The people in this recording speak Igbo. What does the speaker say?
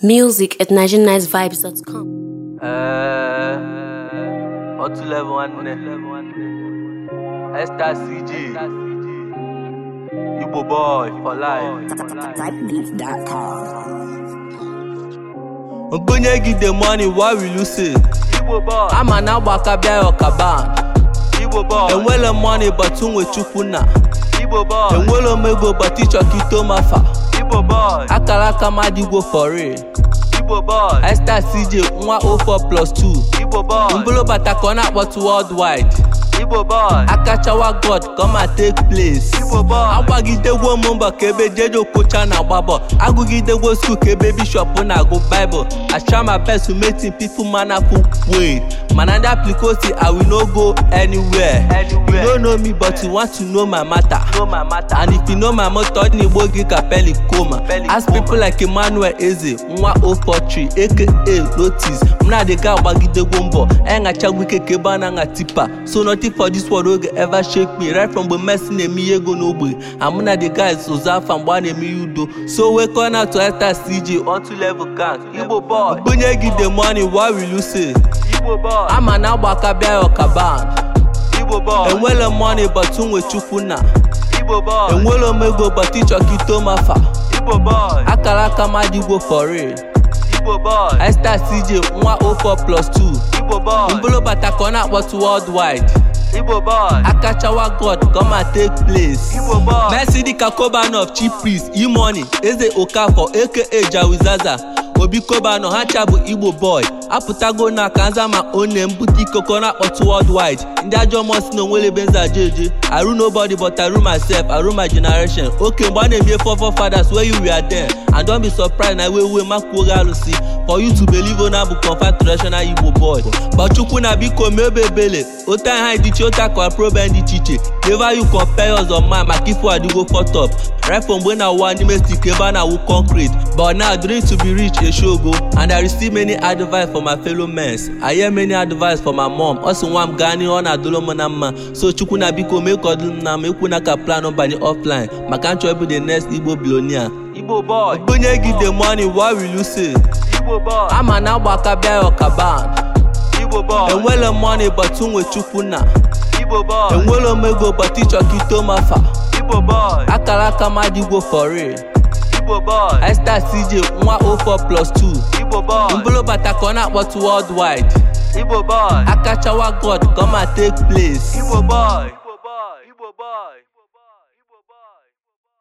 Music at nigeriannicevibes.com. Uh, eh, otu level one? Esther CG. Igbo boy for life. Typebeat.com. Mbunye money, why we lose say? Igbo boy. I'm an agbaka ọkaba. Igbo boy. Enwele money but unwe chukwu na. Igbo boy. Enwele omego but ịchọ ka ito mafa. Igbo boy Akalaka Madigo for real Igbo boy I CJ nwa 04 plus 2 Igbo boy Mbolo bata ka ọ na-akpọtụ worldwide Igbo boy Akachawa God come and take place Igbo boy agbagidegwo m mbọ ka ebe jeje okpocha na-agba bọ agụgidegwo skul ka ebe bishọp na go Bible I try my best to make things peaceful mannerful way mana ndị aplikoti i will no go anywhere you no know me but you want to know my matter and if you know my matter ọ dị n'igbo gị ka peli koma ask people like emmanuel eze nwa 043 aka lotis m na-adịga agbagidegwo mbọ anyachagwo ike ka ebe a na-aṅa tipa so nothing for this world oge ever shake me right from mgbe messi na-eme ihe ego n'ogbe amụ na the guys ụzọ afa mgbe a na-eme ihe so we on out to enter cj on two level count igbo boy bunye gị the money why will you say ama na agbakabịa ọkaban enwele money but nwe chukwu na enwele m ego but to mafa akara aka madigbo for real Esther CJ nwa 04 plus 2 mbụlụ bata ka ọ na-akpọtụ worldwide akachawa god goma take place Messi dịka Coban of Chipris Imoni Eze Okafor aka Jawizaza obi koba ha cha bụ igbo boy apụtago na kanza ma one mbute koko na-akpọtụ worldwide ndị ajọ mmụọ si na onwele be nza jeje arụ nobody but arụ myself arụ my generation oke mgbe a na eme fọfọ fathers wey you were there and don be surprised na we we makwuo gị alụsị for you to believe ona bụ confirmed traditional igbo boy gbachukwu na biko mebe ebele ota ha idiche ota kọprobe ndị iche iche never you compare us on man maka ifo adigo fotop refo mgbe na ụwa n'ime stik ebe a na-awụ concrete but now dream to be rich dey show go and i receive many advice from my fellow men i hear many advice from my mom also sị nwa m gaa n'ihe na mma so chukwu na biko mee ka na mma ekwu ka plan banye offline maka nchọ ịbụ the next igbo billionaire igbo boy bunye gị the money why will you say igbo boy ama na agbaka bịa ọkaba igbo boy enwele money but nwe chukwu na igbo boy enwele m ego but ịchọ ka mafa igbo boy akara aka for real Igbo CJ nwa 04 plus 2 Igbo boy bata ka ọ na-akpọtụ worldwide Igbo boy akachawa God gọma take place Igbo boy